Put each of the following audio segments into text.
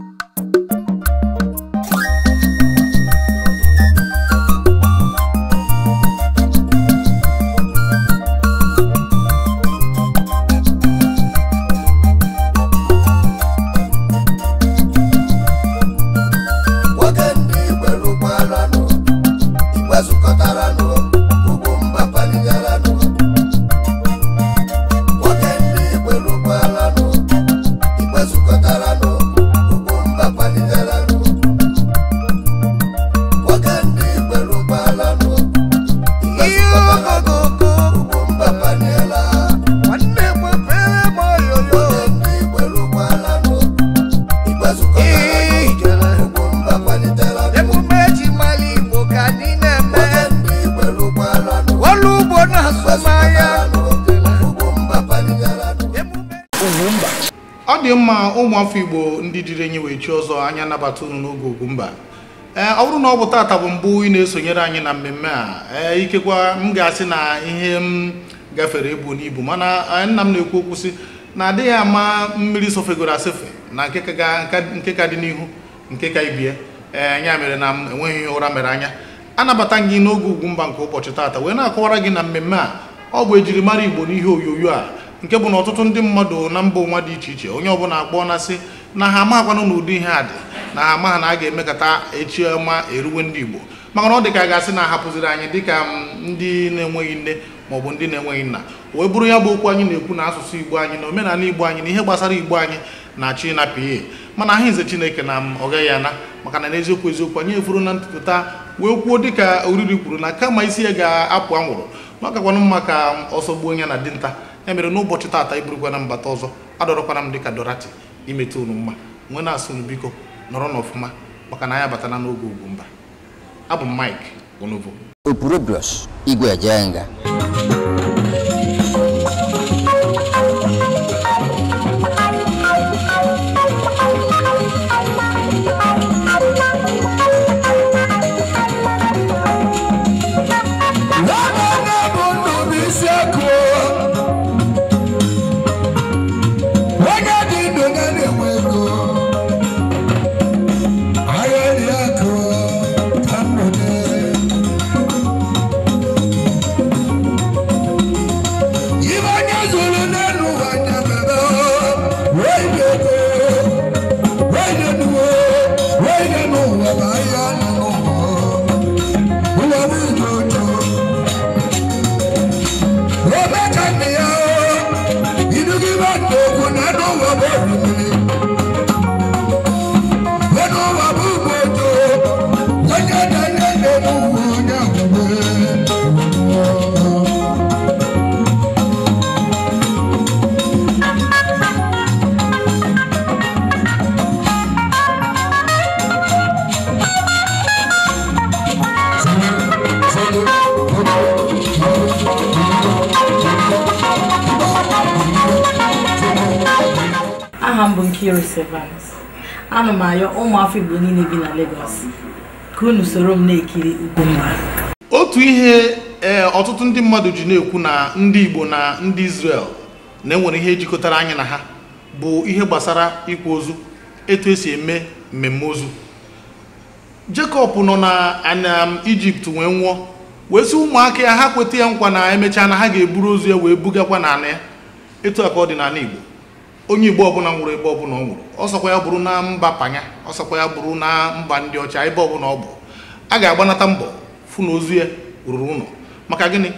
you ma ụmụafọ igbo ndị jiri enyi wee chi ọzọ anya nabata unu n'oge Ugwumba ee ọ bụrụ na ọ bụ taata bụ mbụ ị na-esonyere anyị na mmemme a ee ikekwa m ga-asị na ihe m gafere ebu n'ibu mana e, nna m na-ekwu okwu sị na adịghị ama mmiri sofegoro asefe na nke ka dị n'ihu nke ka ibie ee ya mere na m enweghị ụra mere anya anabata gị n'oge Ugwumba nke ụbọchị taata wee na-akọwara gị na mmemme a ọ bụ ejirimara igbo n'ihe onyonyo a nke bụ na ọtụtụ ndị mmadụ na mba ụwa dị iche iche onye ọbụla akpọọ na sị na ha amakwanụ na ụdị ihe a dị na ha amaha na a ga-emekọta echi ọma eruwe ndị igbo maka na ọ dị ka a ga-asị na ahapụziri anyị dịka ndị na-enweghị nne maọbụ ndị na-enweghị nna wee bụrụ ya bụ okwu anyị na-ekwu na asụsụ igbo anyị na omenala igbo anyị na ihe gbasara igbo anyị na achị na ihe mana aha nze chineke na m ana maka na n'eziokwu eziokwu anyị efuru na ntụpụta wee kwuo dịka oriri kwuru na kama isi ya ga-apụ anwụrụ na mma ka ọsọ gbuo onye na dinta e mere n'ụbọchị taata na mbata ọzọ adọrọkwara m dịka dorati imeta unu mma nwee na-asị unu biko nọrọ n'ọfụma maka na anya batala n'oge mba abụ m Mike okpuru Opurubrus Igwe nga. m bụ Nkiru Sevens m ayọ ụmụafọ Igbo niile bi na Lagos ka unu soro m na-ekiri Ugomma otu ihe e, ọtụtụ ndị mmadụ ji na-ekwu na ndị Igbo na ndị Israel na-enwere ihe jikọtara anya na ha bụ ihe gbasara ịkwa ozu etu esi eme mmemme ozu Jekọb nọ na anam wee nwụọ wee sị ụmụaka ya ha kweta ya nkwa na emechaa na ha ga-eburu ozu ya wee bugakwa n'ala ya etu a ka ọ dị n'ala Igbo onye igbo ọbụla nwụrụ ebe ọbụla ọ nwụrụ ọsọkwa ya bụrụ na mba panya ọsọkwa ya bụrụ na mba ndị ọcha ebe ọbụla ọ bụ a ga-agbanata mbọ fụ na ozu ya ruru ụlọ maka gịnị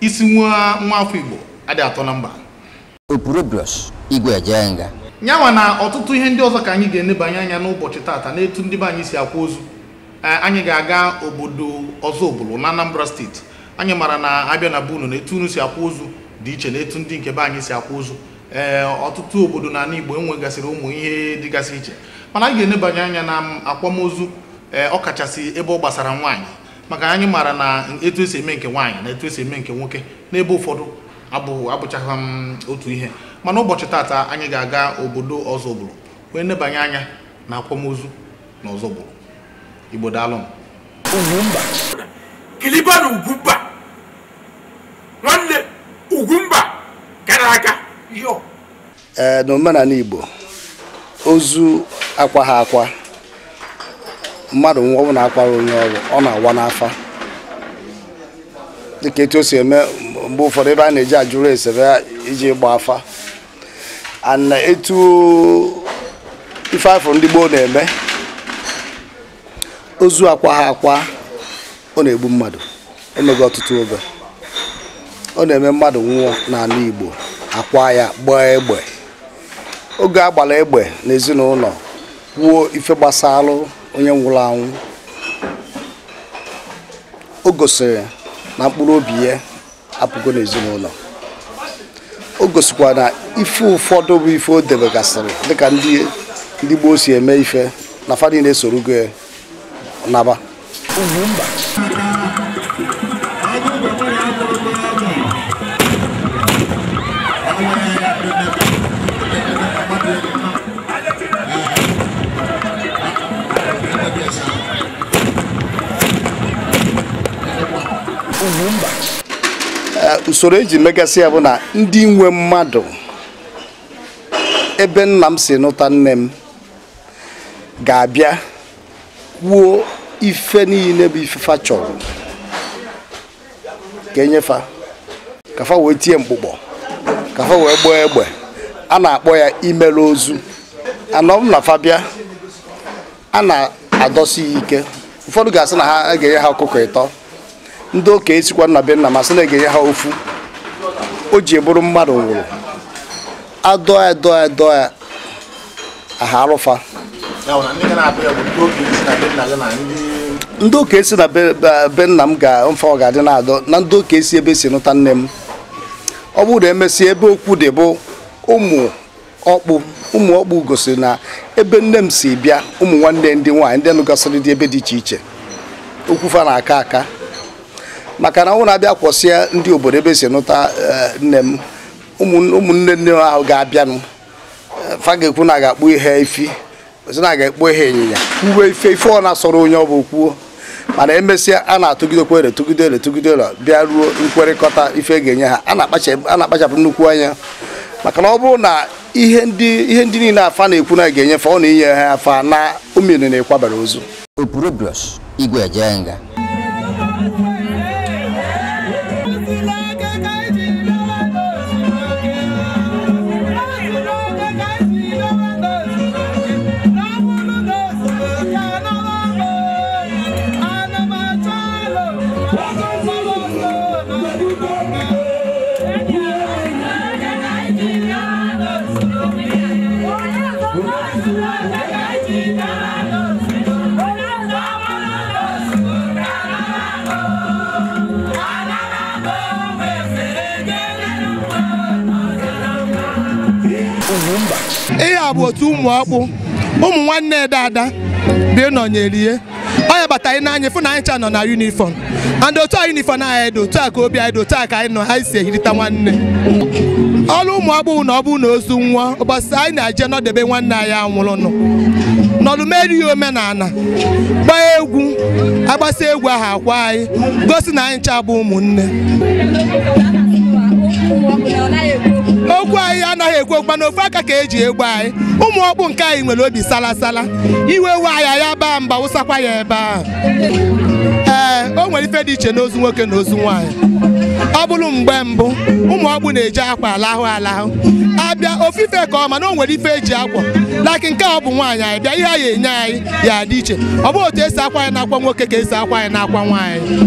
isi nwa nwa afọ igbo adị atọ na mba nyanwa na ọtụtụ ihe ndị ọzọ ka anyị ga-enebanye anya n'ụbọchị taata n'etu ndị be anyị si akwa ozu e, anyị ga-aga obodo ọzọ obulu na Anambra steeti anyị mara na abịa na be unu na etu unu si akwa ozu dị iche na etu ndị nke be anyị si akwa ozu Eh, ọtụtụ obodo na Igbo enwegasịrị ụmụ ihe dịgasị iche mana anyị ga-enebanye anya na akwamozu eh, ọ ọkachasị ebe ọ gbasara nwaanyị maka anyị maara na etu esi eme nke nwaanyị na etu esi eme nke nwoke n'ebe ụfọdụ abụchaghị m mm, otu ihe mana ụbọchị taata anyị ga-aga obodo ọzọgburu wee nebanye anya na akwamozu na ọzọgburu Igbo nwanne. Ugwumba Eh, na omenala Igbo ozu akwa ha akwa mmadụ nwa na akwara onye ọrụ ọ na-awa n'afa dịka etu o si eme mgbe ụfọdụ ebe a na-eji ajụrụ ese iji gba afa ana etu ife afọ ndị gboo na-eme ozu akwa ha akwa ọ na-egbu mmadụ emego ọtụtụ oge ọ na-eme mmadụ nwụọ n'ala Igbo akwa ya gbaa egbe oge a gbara egbe n'ezinụlọ kwuo ife gbasara onye nwụrụ anwụ o gosiri na mkpụrụ obi ya apụgo n'ezinụlọ o gosikwa na ife ụfọdụ bụ ife o debegasịrị dịka ndị gboo si eme ife na fadi na-esorugo naba ugwu mba usoro eji megasị ya bụ na ndị nwe mmadụ ebe nna m si nụta nne m ga-abịa wuo ife niile bụ ifefa chọrọ ka enyefa kafa wee tie mkpụkpọ kafa wee gbaa egbe a na-akpọ ya imere ozu anọ m na fabia a na-adọsi ya ike ụfọdụ ga-asị na ha ga-enye ha ọkụkọ ịtọ ndị okenye sikwa nna be nna ma na-egenye ha ofu o ji bụrụ mmadụ nwụrụ adọ ya dọọ ya aha arụfa ndị okenye si na be nna m ga mfa ọ ga-adị na-adọ na ndị okenye si ebe si nụta nne m ọ bụrụ na emesịa ebe okwu dị bụ ụmụ ọkpụ ụmụ ọkpụ gosiri na ebe nne m si bịa ụmụ nwanne ndị nwaanyị ndị nụgasịrị dị ebe dị iche iche okwu fa na-aka aka maka na ọ na-abịa kwọsịa ndị obodo ebe e si nụta eh, nne m ụmụnne nne m ahụ ga-abịanụ eh, fa ga-ekwu na ga-akpụ ihe ifi ozi na ga-ekpu ihe ịnyịnya uwe ife ife ọ na-asọrọ onye ọ bụ kwuo mana emesịa a na-atụgidekwa ere tụgide ere tụgide ere bịa ruo nkwerịkọta ife e ga-enye ha a na-akpachapụ nnukwu anya maka na ọ bụrụ na ihe ndị ihe ndị niile afa na-ekwu na ga-enyefe ọ na-inye ha afa na omere na-ekwabara ozu ihe a bụ otu ụmụ ọkpụ ụmụ nwanne ede ada bịa nọnyerie onye bata anyị n'anya fụ na anyị cha nọ na yunifọm and otu a yunifọm anyị dị otu a ka obi anyị dị otu a ka anyị nọ anyị si ehirita nwanne ọrụ ụmụ ọkpụ na ọ bụ na ozu nwa ụbọchị anyị na-eje nọdebe nwanne anyị anwụrụ nọ n'ọlụmeri ya omenala gbaa egwu agbasa egwu ahụ akwa anyị gosi na anyị ncha bụ ụmụnne okwu anyị anaghị ekwu okwu mana ofu aka ka eji egbu anyị ụmụ ọkpụ nke anyị nwere obi salasala iwe we anyị ya baa mba wụsakwa ya ebe ahụ ee o nwere ife dị iche n'ozu nwoke na ozu nwaanyị ọ bụrụ mgbe mbụ ụmụ ọkpụ na-eji akwa alahụ alahụ ha bịa ofufe ka ọma na o nwere ife eji akwa laki nke a ọ bụ nwaanyị anyị bịa ihe a ya enye anyị ya dị iche ọ bụ otu esi akwa anyị na-akwa nwoke ka esi akwa anyị na-akwa nwaanyị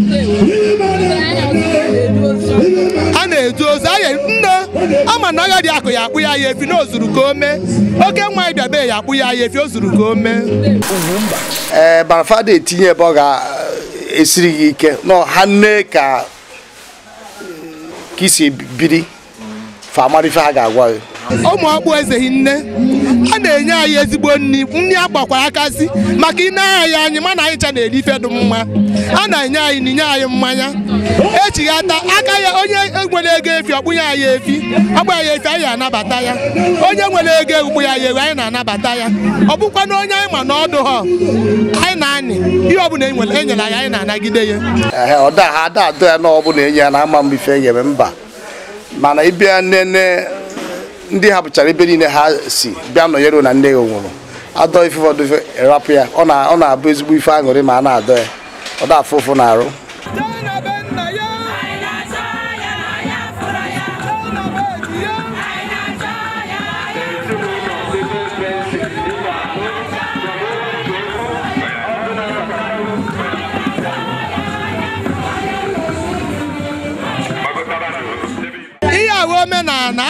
a na-edu ozu nne ama na agha dị akụ ya akpụ ya ya efi na o zuru ka o mee oke nwaanyị bịa be ya akpụ ya ya efi o zuru ka o mee ee eh, barafada etinye ebe ọ ga-esiri eh, gị ike na nne ka eh, ka isi biri fa mara ife ha ga-agwa gị ụmụ ọkpụ ezeghi nne a na-enye anyị ezigbo nri nri agbakwara akazi akasị maka ine anyị anyị mana anyị cha na-eri ife dị mma a na-enye anyị na inye anyị mmanya echighata aka ya onye nwere ego efi ọkpụnye anyị efi ọkpụ ya efi anyị anabata ya onye nwere ego egwukpụ ya ya ewu anyị na-anabata ya ọ bụkwa na onye anyị ma na ha anyị na-anị ihe ọbụla enyere e anyị anyị na-anagide ya ọda ha ada ya na ọbụla enye ya na ama m ife e mba mana ịbịa nene ndị hapụchara ebe niile ha si bịa nọnyere na nne ya nwụrụ adọ ife rapụ ya ọ na-abụ ezigbo ife aṅụrị ma a na-adọ ya ọ da afụ ụfụ na arụ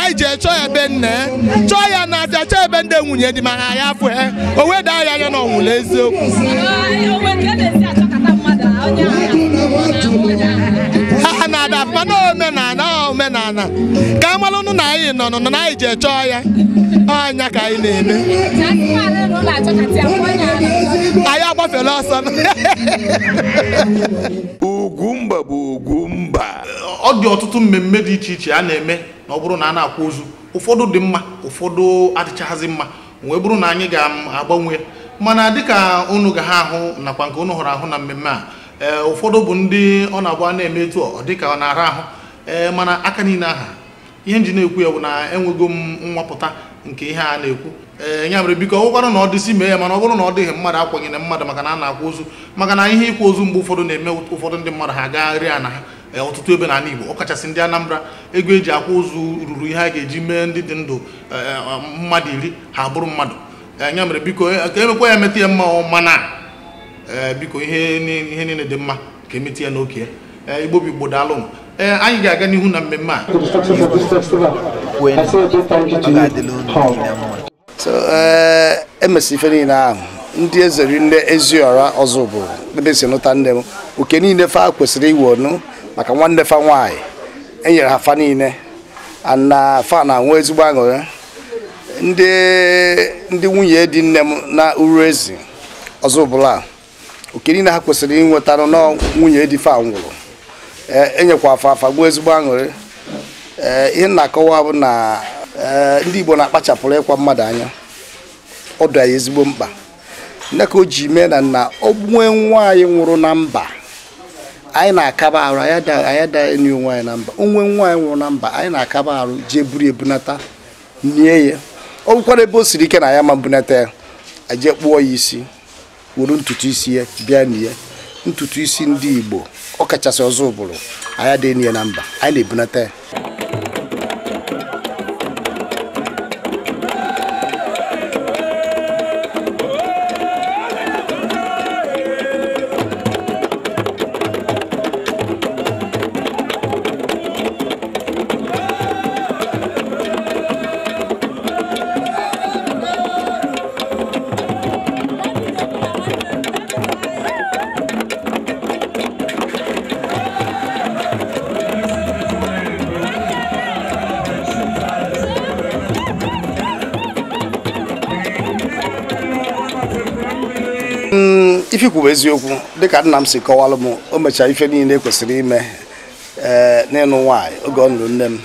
anyị ji echọ ya ebe nna chọọ ya na aja chọọ ebe ndị nwunye dị mana ya afụ ya o weda ya anya na ọnwụla eziokwu ha na-ada mana omenala omenala ka nna anyị nọ nọ na anyị ji echọ ya anya ka anyị na-eme anyị agbafela ọsọ Ugwumba bụ Ugwumba ọ dị ọtụtụ mmemme dị iche iche a na-eme na ọ bụrụ na a na-akwa ozu ụfọdụ dị mma ụfọdụ adịchaghịzị mma wee bụrụ na anyị ga-agbanwe mana dịka unu ga ha ahụ nakwa nke unu hụrụ ahụ na mmemme a ee ụfọdụ bụ ndị ọ na-agba na-eme etu ọ dịka ọ na-ara ahụ ee mana aka niile aha ihe nji na-ekwu ya bụ na enwego m nwapụta nke ihe a na-ekwu ee ya mere biko ọgwụkwanụ na ọ dịsị mee ya mana ọ bụrụ na ọ dịghị mmadụ akwaghị mmadụ maka na a na-akwa ozu maka na ihe ịkwa ozu mgbe ụfọdụ na-eme ụfọdụ ndị mmadụ ha gagharị a na ha ọtụtụ ebe n'ala Igbo ọkachasị ndị Anambra ego eji akwa ozu ruru ihe a ga-eji mee ndị dị ndụ e, e, mmadụ iri ha bụrụ mmadụ ya mere biko e, ka emekwa ya emeta ya mma mana biko ihe niile dị mma ka emeta ya n'oke Igbo bụ Igbo daalụ Eh, anyị ga-aga n'ihu na mmemme a so eh, emesi ife niile ahụ ndị ezeri nne eziọra ọzọ bụ ebe si nụta nne m oke niile fa kwesịrị iwe ọnụ maka nwanne fa nwanyị enyere ha fa niile na fa na-anwụ ezigbo aṅụrị ndị nwunye dị nne m na uru ezi ọzọ bụla oke niile ha kwesịrị inwetara na nwunye dị fa nwụrụ Eh, enyekwa afa afa gbuo ezigbo aṅụrị ee eh, ihe na-akọwa bụ na eh, ndị Igbo na-akpachapụrụ ịkwa mmadụ anya ọ dị anyị ezigbo mkpa nne ka o ji mee na nna onwe nwa anyị nwụrụ na mba anyị na-akaba arụ anyị ada enyi onwe anyị na mba onwe nwa anyị nwụrụ na mba anyị na-akaba arụ jee buru ebunata nie ya ọ bụkwara ebe o siri ike na ya ma mbunata ya eje kpụọ ya isi wuru ntutu isi ya bịa na ya ntutu isi ndị Igbo ọ kachasị ọzọ ụbụrụ anyị dị n'ihe na mba anyị na-ebunata ya ifikwu bụ eziokwu dịka nna m si kọwalụ m o mechaa ife niile kwesịrị ime ee n'ịnụ nwaanyị oge ọ nụrụ nne m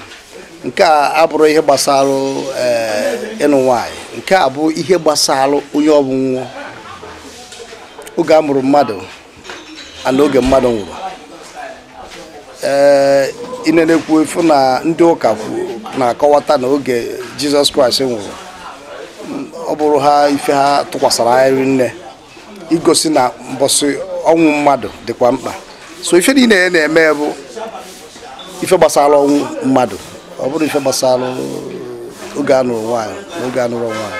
nke a abụrụ ihe gbasara ịnụ nwaanyị nke a bụ ihe gbasara onye ọ bụ nwụọ oge a mụrụ mmadụ ana oge mmadụ nwụrụ ee eh, inenekwu efu na ndị ụka na-akọwata na oge jizọs kraịst nwụrụ ọ bụrụ ha ife ha tụkwasara anyị nne igosi na mbọsị ọnwụ mmadụ dịkwa mkpa so ife niile na-eme bụ ife gbasara ọnwụ mmadụ ọ bụrụ ife gbasara oge anụrụ nwaanyị oge anụrụ nwaanyị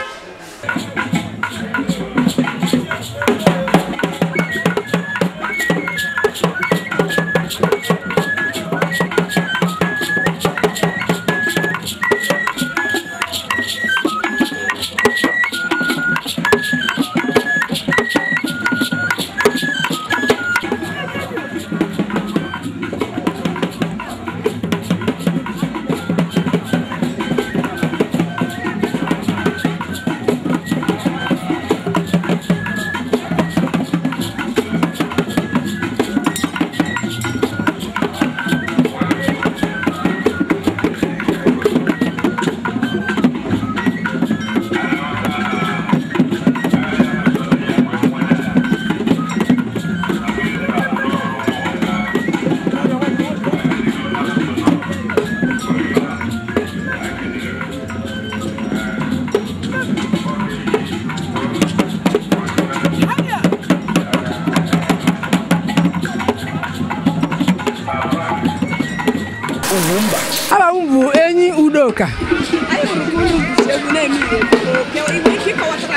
ụka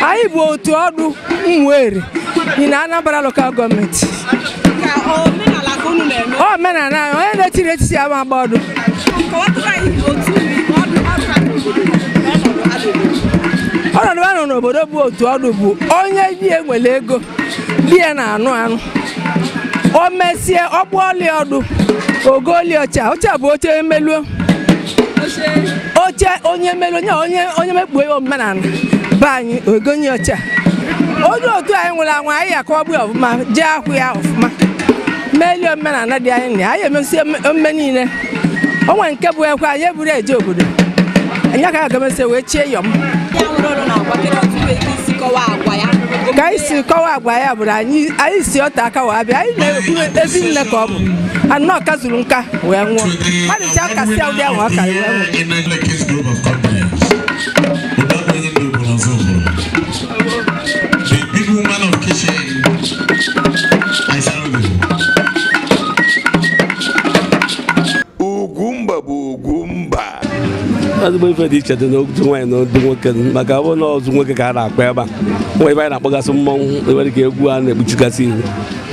anyị bụ otu ọdụ mwere dị na Anambra lokal gọọmenti omenala onye na-etiri etiti ama agba ọdụ ọnọdụ a nọ n'obodo bụ otu ọdụ bụ onye bi enwere ego di ya na-anụ anụ o mesie ọgbụ ọlị ọdụ ogo ọlị ọcha ọcha bụ oche emeluo oche onye mere onye onye mekpuo ya omume na be anyị ogonye oche onye otu anyị nwụrụ anwụ anyị ya ka ọ bụ ọfụma jee akwụ ya ọfụma melie omenala dị anyị na anyị emesi omume niile onwe nke bụ ekwe anyị eburu eje obodo anyị ka agamesi wee chie yọm ya nwere ọrụ na agwa kedu otu esi kọwaa agwa ya ka anyị si kọwa agwa ya bụrụ anyị anyị si ọta aka wee bịa anyị na-ekwu ezi nne ka ọ bụ anọ zuru nka wee nwụọ mmadụ ji ahụ ya nwụọ ka wee nwụọ ezigbo ife dị iche dị n'otu nwaanyị na ndị nwoke maka ọ bụrụ na ọzụ nwoke ka a na-akpa ebe a nwa ebe a na-akpọgasị mmọnwụ ebe dị ka egwu a na-ekpuchigasị ihu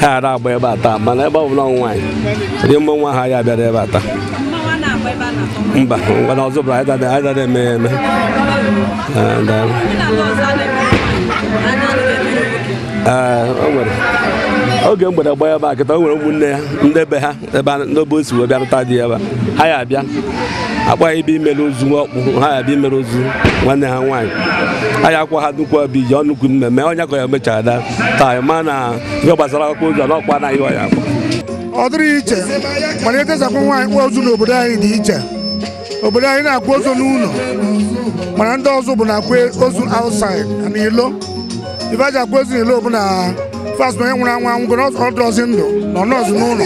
ha ara agba ebe a taa mana ebe ọ bụla nwaanyị dị mmọnwụ ahụ ya abịara ebe a taa mba ngwana ọzọ bụla anyị eme ya eme oge mgbede gba ebe a kịta o nwere ụmụnne ya ndị be ha ebe n'obe o si wee bịarụta dị ebe ha ya abịa akpa ibe imere ozu ọkpụ ha ya bụ imere ozu nwanne ha nwaanyị anyị akwa ha dukwu bụ ije ọnụkwu mmemme onye ka ya mechara ada taa ma na ihe gbasara akụkọ ozu na ọkpa anaghị ọya akwa ọ dịrị iche mana etesakwa nwaanyị kpụọ ozu n'obodo anyị dị iche obodo anyị na akwụ ozu n'ụlọ mana ndị ọzọ bụ na akwụ ozu outside na ilo ife aji akwa ozu n'ilo bụ na fast onye nwụrụ anwụ anwụgo ọdụrọzi ndụ na ọ nọọzụ n'ụlọ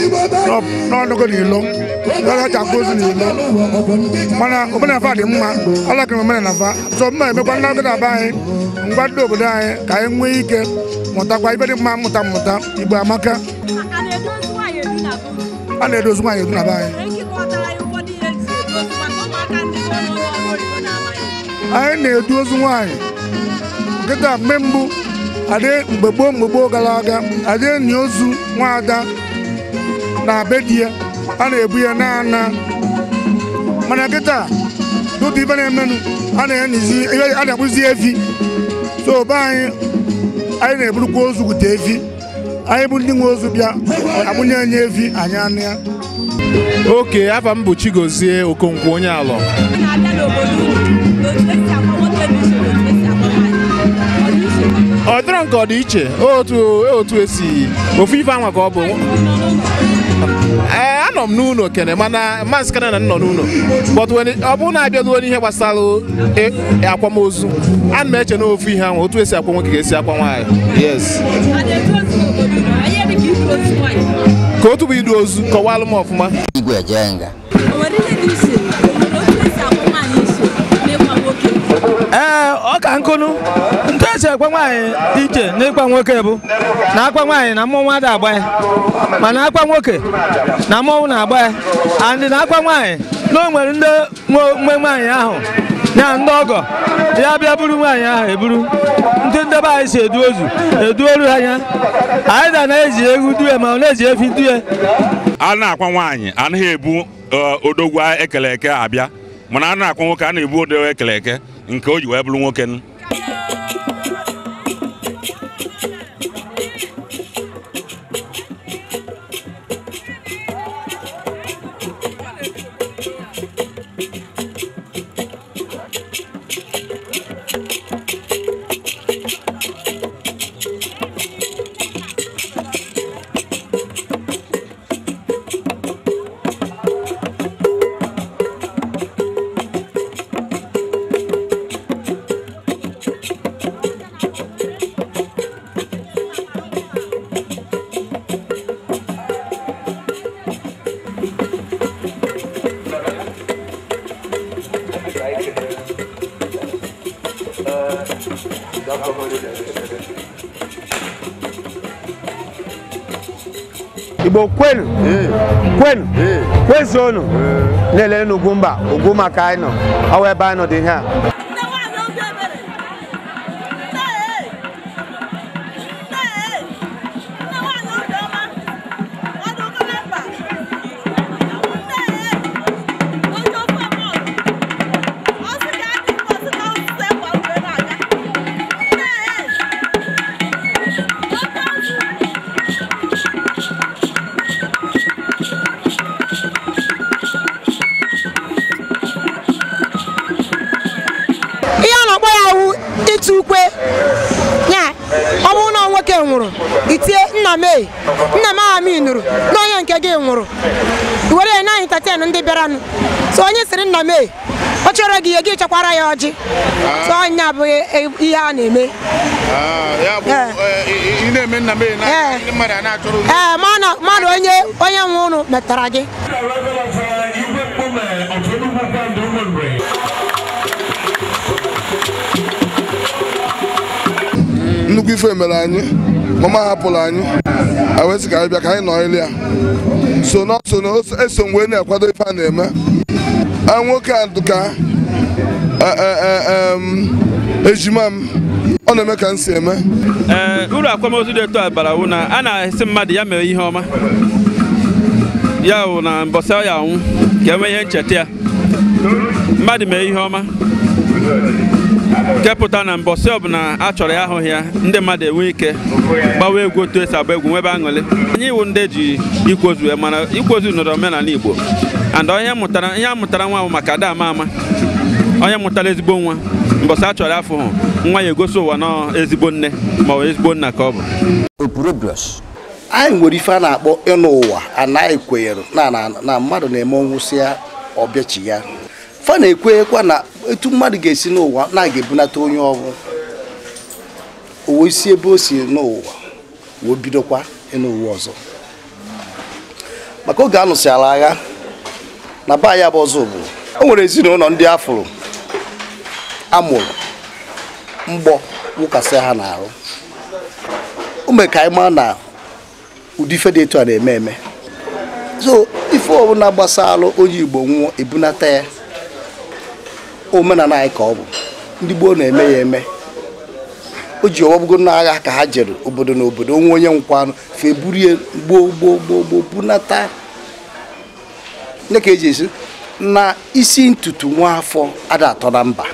n'ọnụgo n'ilo ọcha mposi na ilo mana omenala dị mma alakịrị omenala fa so mma emekwa ndị agụda be anyị ngwa ndị obodo anyị ka anyị nwee ike mụtakwa ibe dị mma mmụta mmụta igbo amaka a na-edozi nwaanyị ebi na be anyị anyị na-edu ozu nwaanyị nkịta mgbe mbụ adị mgbe gboo mgbe gboo gara aga adị enyi ozu nwaada na be di ya a na-ebu ya na-ana mana kịta n'otu ibe na-emenụ a na-akpụzi efi so be anyị anyị na-eburukwa ozu gute efi anyị bụ ndị nwe ozu bịa agbụnye efi anyị anụ ya oke afa m bụ Chigozie Okonkwo onye alọ ọ dịrọ nke ọ dị iche e otu esi e ofu ife anwa ka ọ bụ ee eh, anọ m n'ụlọ kene mana maazị na nọ n'ụlọ ọ bụrụ na abịaluo ihe gbasara e, e, akwamozu na m eche na ofu ihe ahụ otu esi akwa nwoke ga-esi akwa nwaanyị yes ka otu bụ idu ozu kọwalụ m ọfụma ee eh, ọ ka nkụnụ ntu esi ekwe nwaanyị iche n'ịkwa nwoke bụ na akwa nwaanyị na mmụọ ada agba ya mana akwa nwoke na mmọnwụ na-agba ya andị na akwa nwaanyị na o nwere ndị nwe nwaanyị ahụ ya ndị ọgọ ya bịa buru nwaanyị ahụ eburu ndị ndebe anyị si edu ozu edu ha anya anyị da na-eji egwu due ma ọ na-eji efi due a na-akwa nwaanyị anaghị ebu eh, odogwu ekele eke abịa mana a na-akwa nwoke a na-ebu odogwu ekele eke nke o ji wee bụrụ nwoke Igbo kwenu kwenu kwezuonu na-ele ugwu mba ugwu maka anyị nọ ọwa ebe dị ihe nna m e nna m aha m na onye nke gị nwụrụ were ya na entertain ndị bịaranụ so onye sịrị nna m e ọ chọrọ gị ihe gị chekwara ya ọjị so onye abụghị e, e, ihe a na-eme ah, ee eh. mmadụ onye onye nwe ụnụ metara gị nnukwu ife mere anyị mama hapụrụ anyị ewesị ka anyị bịa ka anyị nọrịrị ya so na so na eso mgbe na ife a na-eme nwoke a dụka ejima m ọ na-eme ka m si eme eh, uru akwamozu dị etu abara wụ na a na-esi mmadụ ya mere ihe ọma ya wụ na mbọsị ya anwụ ka enwe ihe ncheta ya mmadụ mee ihe ọma kepụta na mbọsị ọbụla a chọrọ ya ahụghị ya ndị mmadụ enwe ike gbawa egwu otu esi agba egwu nwebe aṅụlị anyị iwu ndị ji ikwozu e mana ikwozu nọrọ omenala Igbo and onye mụtara ihe a mụtara nwa bụ maka ada ama ama onye mụtara ezigbo nwa mbọsị a chọrọ afọ hụ nwa ya egosi ụwa nọọ ezigbo nne ma ọ ezigbo nna ka ọ bụ anyị nwere ife a na-akpọ ịnụ ụwa anaghị kwenyere na mmadụ na-eme ọnwụsị ya ọbịachi ya fa na-ekwenyekwa na etu mmadụ ga-esi n'ụwa na aga ebunata onye ọrụ owe isi ebe o si n'ụwa wee bidokwa n'ụwa ọzọ maka oge a ala agha na baa ya bụ ọzọ bụ o e nwere ezinụlọ ndị afụrụ amụrụ mgbọ wụkasị ha n'arụ o mere ka anyị na ụdị ife dị etu a na-eme eme so ife ọbụla gbasara onye Igbo nwụọ ebunata ya omenala anyị ka ọ bụ ndị gboo na-eme ya eme o ji ọwọbụgo n'agha ka ha jere obodo na obodo onwe onye nkwanụ feburie gboo gboo gboo gboo bunata nne ka eji esi na isi ntutu nwa afọ ada atọ na mba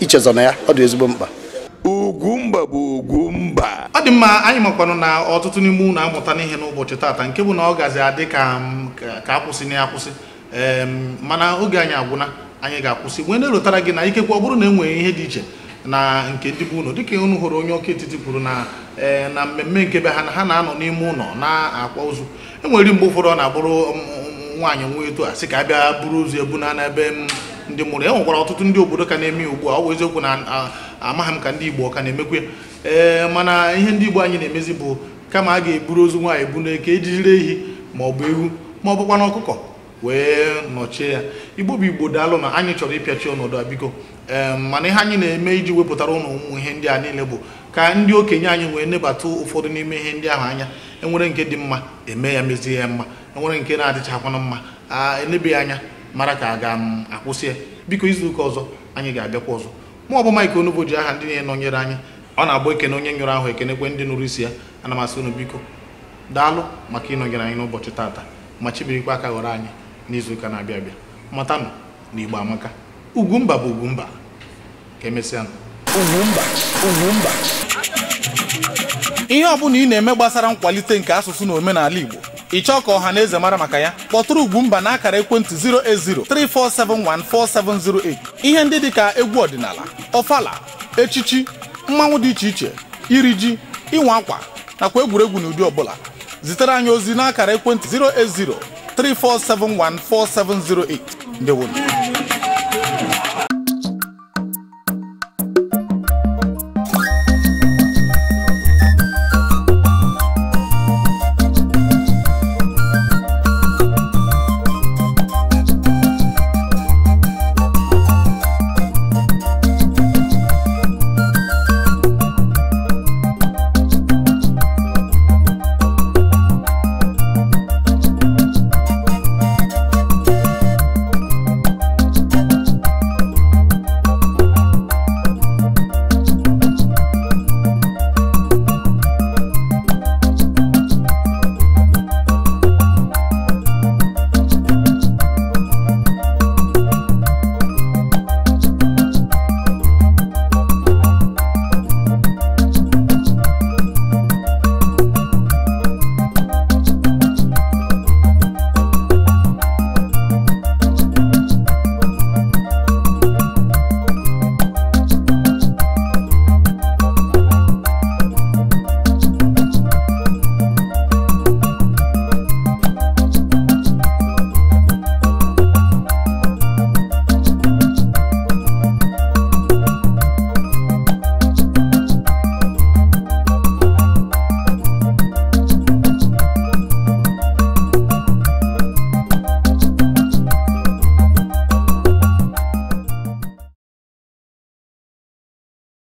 ichezọ na ya ọ dị ezigbo mkpa Ugwumba bụ Ugwumba ọ dị mma anyị makwanụ na ọtụtụ n'ime unu amụta n'ihe n'ụbọchị taata nke bụ na ọ gazi adị ka akwụsị na akwụsị mana oge anyị agwụna anyị ga-akwụsị mgbe na-erotara gị na ikekwe ọ bụrụ na e ihe dị iche na nke ndị bụ ụlọ dịka unu hụrụ onye ọka etiti kwuru na ee na mmemme nke be ha na ha na-anọ n'ime ụlọ na-akwa ozu e nwere mgbe ụfọdụ ọ na-abụrụ nwaanyị nwa eto a sị ka abịa buru ozu ebu na n'ebe ndị mụrụ e nwekwara ọtụtụ ndị obodo ka na-eme ugbu a ọ bụ eziokwu na amaghị m ka ndị Igbo ka na-emekwe ee mana ihe ndị Igbo anyị na-emezi bụ kama a ga-eburu ozu nwaanyị ebu n'eke ejijiri ehi ma ọ bụ ewu ma ọ bụkwa na ọkụkọ wee nọchie ya igbo bụ igbo daalụ na anyị chọrọ ịpịachi ọnọdụ a biko mana ihe anyị na-eme iji wepụtara ụlọ ụmụ ihe ndị a niile bụ ka ndị okenye anyị wee nebata ụfọdụ n'ime ihe ndị ahụ anya enwere nke dị mma eme ya mezie ya mma enwere nke na-adịchakwana mma a ya anya mara ka a ga-akwụsị ya biko izuụka ọzọ anyị ga-abịakwa ọzọ mụ bụ Mike Onugbo ji aha ndị na-enọnyere anyị ọ na-abụ ekene onye nyụrụ ahụ ekenekwe ndị nụrụ isi ya ana m asị unu biko daalụ maka ịnọnyere anyị n'ụbọchị tata ma chibirikwa aka ghọrọ anyị n'izuụka na-abịa abịa matanụ na igbo amaka ugwumba bụ ugwumba ka emesịa ugwumba ugwumba ihe ọ bụla ị na-eme gbasara nkwalite nke asụsụ na omenala igbo ị chọọ ka ọha na eze mara maka ya kpọtụrụ ugwumba na akara ekwentị 08034714708 ihe ndị dịka egwu ọdịnala ọfala echichi mmanwụ dị iche iche iri ji ịnwa akwa nakwa egwuregwu na ụdị ọbụla zitere anyị ozi n'akara ekwentị 080 3471 4708